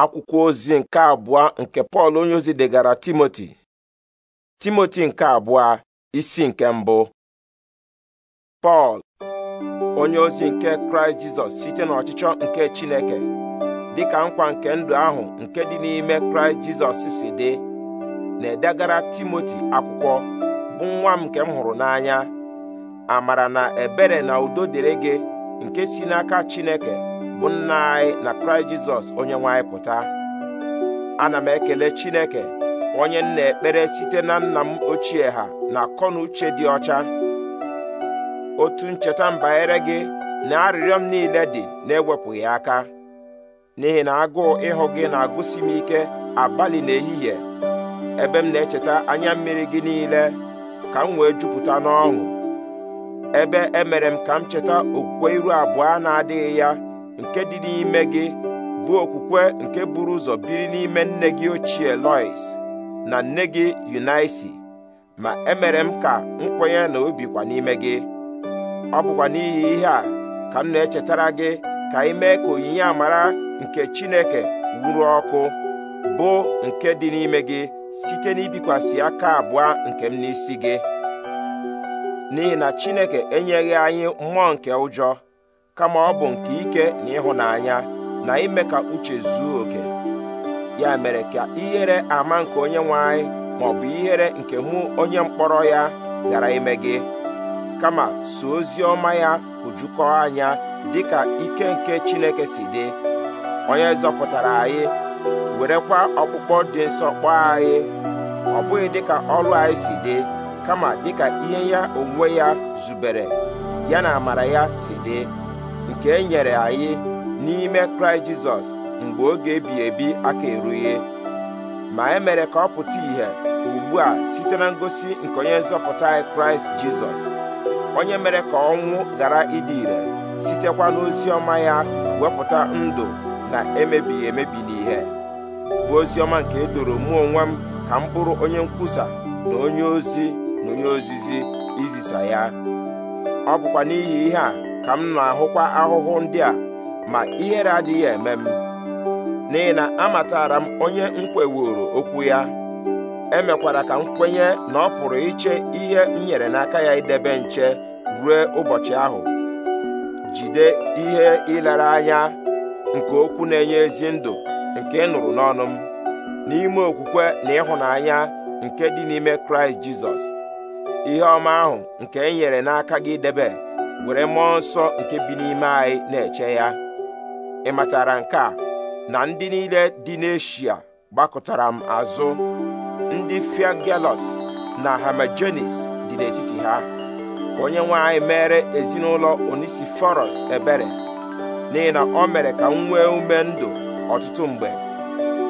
akwụkwọ ozi nke abụọ nke pọl onyeozi ozi degara timoti timoti nke abụọ isi nke mbụ pọl onye ozi nke kraịst jizọs site n'ọchịchọ nke chineke dị ka nkwa nke ndụ ahụ nke dị n'ime kraịst jizọs si dị na-edegara timoti akwụkwọ bụ nwa m nke m hụrụ n'anya amara na ebere na udo dịrị gị nke si n'aka chineke bụ nna anyị na kraịst jizọs onye nwe anyị pụta ana m ekele chineke onye m na-ekpere site na nna m ochie ha na akọ uche dị ọcha otu ncheta mbanyere gị na arịrịọ m niile dị na-ewepụghị aka n'ihi na agụụ ịhụ gị na-agụsi m ike abalị na ehihie ebe m na-echeta anya mmiri gị niile ka m wee jupụta n'ọṅụ ebe emere m ka m cheta okwukwe iru abụọ na-adịghị ya nke dị n'ime gị bụ okwukwe nke buru ụzọ biri n'ime nne gị ochie Lois na nne gị Yunaisi ma emere m ka m kwenye na obi n'ime gị ọ bụkwa n'ihi ihe a ka m na-echetara gị ka ị ka onyinye amara nke Chineke wuru ọkụ bụ nke dị n'ime gị site n'ibikwasị aka abụọ nke m n'isi gị n'ihi na Chineke enyeghị anyị mmụọ nke ụjọ kama ọ bụ nke ike na ịhụnanya na ime ka uche zuo oke ya mere ka ihere ama nke onye nwe anyị ma bụ ihere nke mụ onye mkpọrọ ya ghara ime gị kama so ozi ọma ya hụjukọọ anya dịka ike nke Chineke si dị onye zọpụtara anyị werekwa ọkpụkpọ dị nsọ kpọọ anyị ọ bụghị dịka ọrụ anyị si dị kama dịka ihe ya onwe ya zubere ya na amara ya si dị nke e nyere anyị n'ime kraịst jizọs mgbe oge ebi ebi aka erughị ma e mere ka ọ pụta ìhè ugbu a site na ngosi nke onye nzọpụta anyị kraịst jizọs onye mere ka ọnwụ ghara ịdị ire sitekwa n'ozi ọma ya wepụta ndụ na emebighị emebi n'ihe bụ ozi ọma nke e doro mụ onwe m ka m bụrụ onye nkwusa na onye ozi na onye ozizi izisa ya ọ bụkwa n'ihi ihe a ka m na-ahụkwa ahụhụ ndị a ma ihere adịghị eme m n'ihi na amatara m onye m okwu ya emekwara ka m kwenye na ọ pụrụ iche ihe m nyere n'aka ya idebe nche ruo ụbọchị ahụ jide ihe ịlara anya nke okwu na-enye ezi ndụ nke ịnụrụ nụrụ n'ọnụ m n'ime okwukwe na ịhụnanya nke dị n'ime kraịst jizọs ihe ọma ahụ nke e nyere n'aka gị debe were mmụọ nsọ nke bi n'ime anyị na-eche ya ị matara nke a na ndị niile dị n'eshia gbakọtara m azụ ndị fiagelos na hamajenis dị n'etiti ha onye nwe anyị mere ezinụlọ onisiforos ebere n'ihi na o mere ka m nwee ume ndụ ọtụtụ mgbe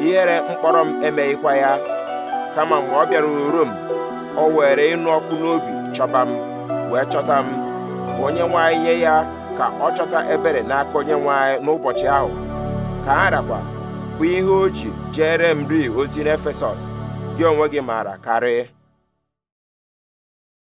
ihere mkpọrọ m emeghịkwa ya kama mgbe ọ bịara uru o were ịnụ ọkụ n'obi chọba m wee chọta m onye nwe anyị nye ya ka ọ chọta ebere n'aka onye nwe n'ụbọchị ahụ ka arakwa rakwa bụ ihe o ji jere m ri ozi n'efesọs gị onwe gị maara karịa